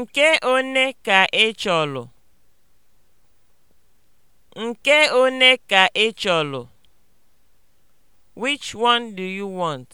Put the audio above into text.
Nke one ka ị e chọlụ? Nke one ka ị e chọlụ? Which one do you want?